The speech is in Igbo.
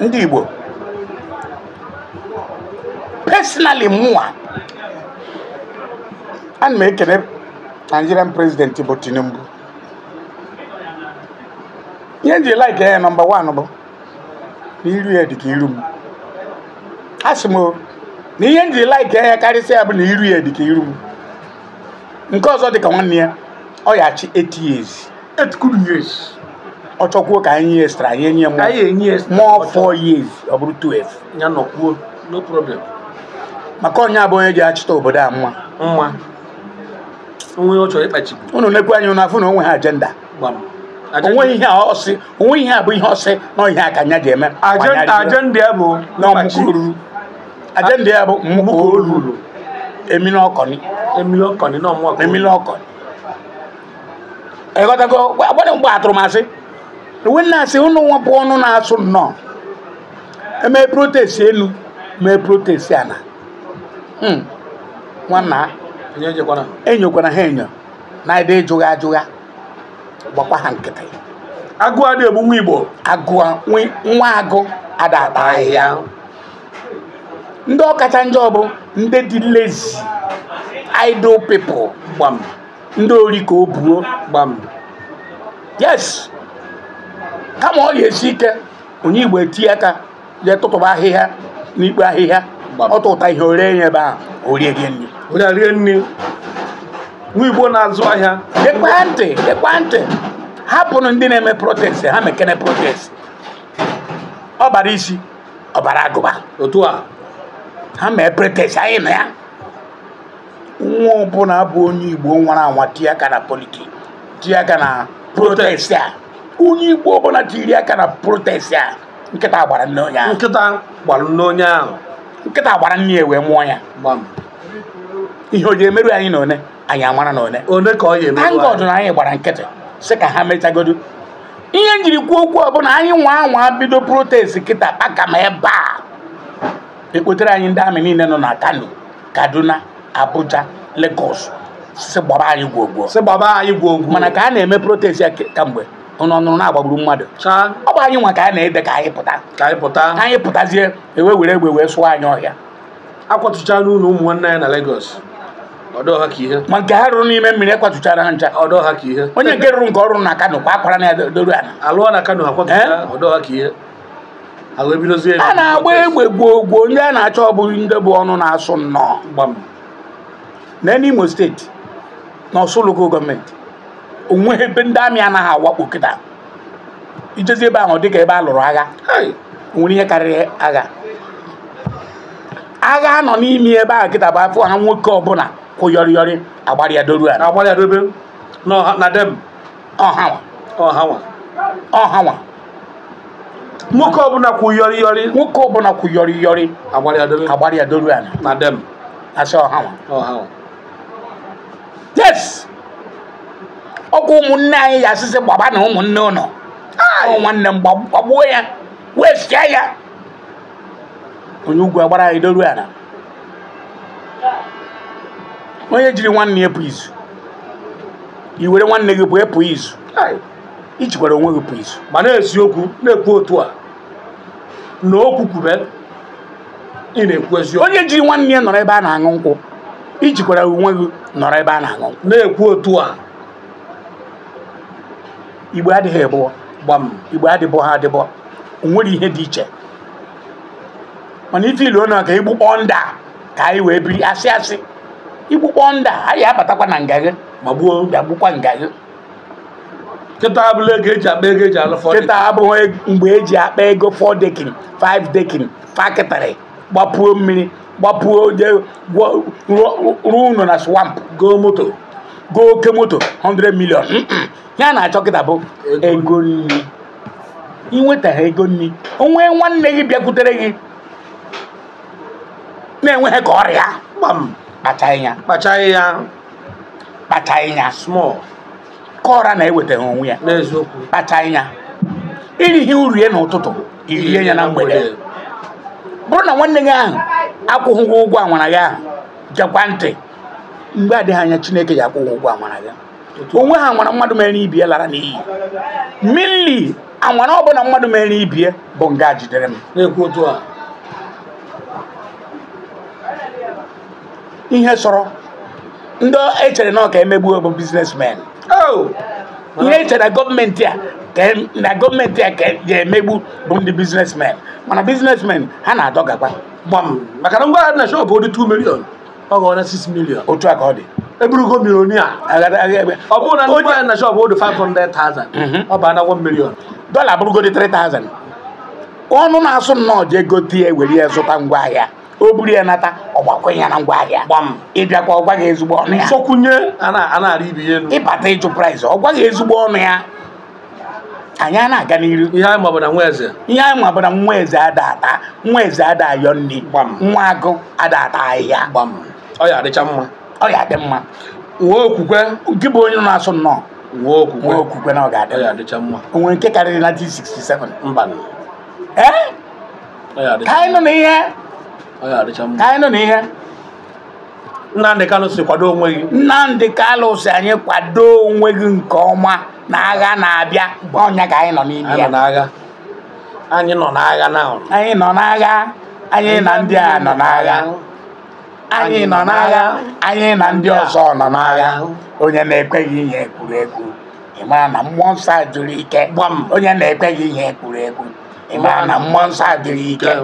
ndị Igbo personally mụwa ana m ekele Nigerian president bụ Tinubu ihe m ji like ya nọmba wan bụ na iru ya dịka iru m asị m na ihe m ji like ya karịsịa bụ na iru ya dịka iru m nke ọzọ dịka nwanne ya ọ ya achị 8 years 8 good years ọ chọkwuo ka anyị extra anyị enye m more four years ọ bụrụ 12 ya nọkwuo no problem maka onye abụ onye ji achịta obodo a mma mma onwe ọ chọrọ ịkpachibu unu nekwu anya na afụ na onwe ha ajenda onwe ihe a ọsị onwe ihe a bụ ihe ọsị na ihe a ka anya ji eme ajenda ya bụ na ọmụkọ ruru ajenda ya bụ mmụkọ olulu emili ọkọni emili ọkọni na ọmụkọ emili ọkọni ịghọtago gbadị mgbe atụrụ m asị winners unu nwepụ ọnụ na-asụ nnọọ emee protest elu mee protest ala hmm. nwanna enyokwara e ha enyo na ebe ịjụgha ajụgha gbakwa ha nkịtị agụ adị egbu nwa igbo agụa nwa agụ ada ata ahịhịa ndị ọkacha njọ bụ ndị dị lezi idle pipo gbam ndị ori ka o buo gbam yes kama ọ ga-esi ike onye Igbo etinye aka jee tụtụba ahịhịa n'ikpe ahịhịa ọtụ ụta ihe ore ya ebe ahụ orie gị nri onye rie nri nwa Igbo na-azụ ahịa ekwentị ekwentị hapụrụ ndị na-eme protest ha mekene protest bara isi ọ bara agụba otu a ha mee protest anyị na ya nwa ọbụla bụ onye Igbo nwara anwa tie aka na politiki tie aka na protest a onye igbo ọbụla jiri aka na protest a nkịta gbara nne onye ahụ nkịta gbara nne onye ahụ nkịta gbara nne ya wee mụọ ya ihe o ji emerụ anyị na one anyị amara na one one ka ọ ya emerụ anyị ọdụ na anyị gbara nkịtị sị ka ha mechagodo ihe njiri kwuo okwu ọ anyị nwa anwa bido protest kịta kpaka ma ebe a ekpotere anyị ndị amị niile nọ na Kano Kaduna Abuja Lagos si gbaba anyị gwogwo si gbaba anyị gwogwo mana ka a na-eme protest ya kamgbe ụnụ ọnụrụ na-agbagburu mmadụ ọ bụ anyị nwa ka a na-ede ka anyị pụta ka anyị pụta ka anyị pụtazie ewe were egbe wee sụọ anyị ọhịa akwatụchala ụlọ ụmụ nwanne ya na Lagos ma nke ha rụrụ n'ime mmiri ekwatụchara ha ncha onye nke rụrụ nke ọrụ na Kano kwa akwara na ya doro ala a na-agba egbe gboo gboo onye a na-achọ ọ bụghị ndị bụ ọnụ na-asụ nnọọ na Imo steeti na Ọsụlụko gọọmenti onweghị ebe ndị amị anaghị awakpo kịta ijezi ebe ahụ dịka ebe a lụrụ agha nwere ihe karịrị agha agha nọ n'ime ebe ahụ kịta bụ afọ ha nwoke ọbụla kwụyọrịyọrị agbarịadoru ọhawa nwoke ọbụla kwụyọrịyọrị nwoke ọbụla kwụyọrịyọrị agbarịadoru ala na dem asị ọhawa yes ọkwa ụmụnne anyị ya asịsị gbaba na ụmụnne ụnọ nwanne m gbagbuo ya wee sịa ya onye ugwu agbara anyị doru ala onye jiri nwanne ya pụ izu i were nwanne gị pụọ pụọ izu ijikwara onwe gị pụọ izu ma na-esi okwu na-ekwu otu a na okwu kwube ị na-ekwu eziokwu onye jiri nwanne ya nọrọ ebe a na-aṅụ nkwụ ijikwara onwe gị nọrọ ebe a na-aṅụ nkwụ na-ekwu otu a igbe adịghị egbụ gbam igbe adịbọ ha adịbọ onwere ihe dị iche mana ife ilu na ka igbukpọ nda ka anyị wee biri asị asị igbukpọ nda anyị abatakwa na nga ma gbuo ya gbukwa nga gị kịta abụghị ego eji akpa ego eji alụ fọ kịta abụghị mgbe eji akpa ego fọ dekin five dekin fakịtịrị gbapuo mmiri gbapuo ruo ụlọ na swamp goo moto goo oke moto 100 million ya na-achọ kịta bụ ego nri inweta ha ego nri onwe nwanne gị bịakwutere gị na enweghị ka ọrịa kpachaghị ya kpachaghị ya small ka ọra na-eweta ha onwe ya n'eziokwu kpachaghị ya irighi urie n'ụtụtụ irie ya na mgbede bụrụ na nwanne gị ahụ akwụghị ụgwọ anwara gị ahụ jekwa ntị mgbe adịghị anya chineke ya akwụghị ụgwọ anwara gị onwe ha nwara mmadụ mere ibie lara n'iyi mili anwara ọbụla mmadụ mere ibie bụ nga jidere m na otu a ihe sọrọ ndị echere na ọ ka emegbuo bụ biznesmen oh! ihe echere na gọọmenti a na gọọmenti a ka ga-emegbu e bụ ndị biznesmen mana biznesmen ha na-adọgakwa gbam maka na ngwa na shọpụ dị 2 milion ọ ghọọ na 6 milion otu a ka ọ dị eburugo milionia ọ bụrụ na onye na shop 500,000 mhm. ọ bụ anagwọ milion dọla abụrụgodi 3,000 ọnụ na-asụ nnọọ ji ego ya were ya zụta ngwaahịa o ya nata na ngwaahịa ịbịakwa ọ gwaghị ezigbo ọnụ ya sokwunye ịbata praịs ezigbo ọnụ ya anyị a na-aga n'iru ihe anyị mabụ na nwa eze ihe anyị mabụ na nwa eze ada ata nwa eze ada ayọ nri nwa agụ ada ata ahịhịa ọ ya adị mma wuo okwukwe gị bụ onye na-asụ nnọọ wuo okwukwe okwukwe na ọ ga-adị mma o nwere nke karịrị na 1967 mba ee ka anyị nọ n'ihe ka anyị nọ n'ihe Nnamdị Kanụ kwado onwe gị Nnamdị Kanụ anyị kwado onwe gị nke ọma na agha na-abịa ọnya ka anyị nọ n'ime ya anyị nọ n'agha anyị nọ n'agha anyị na ndị a nọ n'agha anyị nọ n'agha anyị na ndị ọzọ nọ n'agha onye na-ekweghị ihe ekwuru ekwu ị mara na mmụọ nsọ jụrụ ike onye na-ekweghị ihe ekwuru ekwu ị mara na mmụọ nsọ jụrụ ike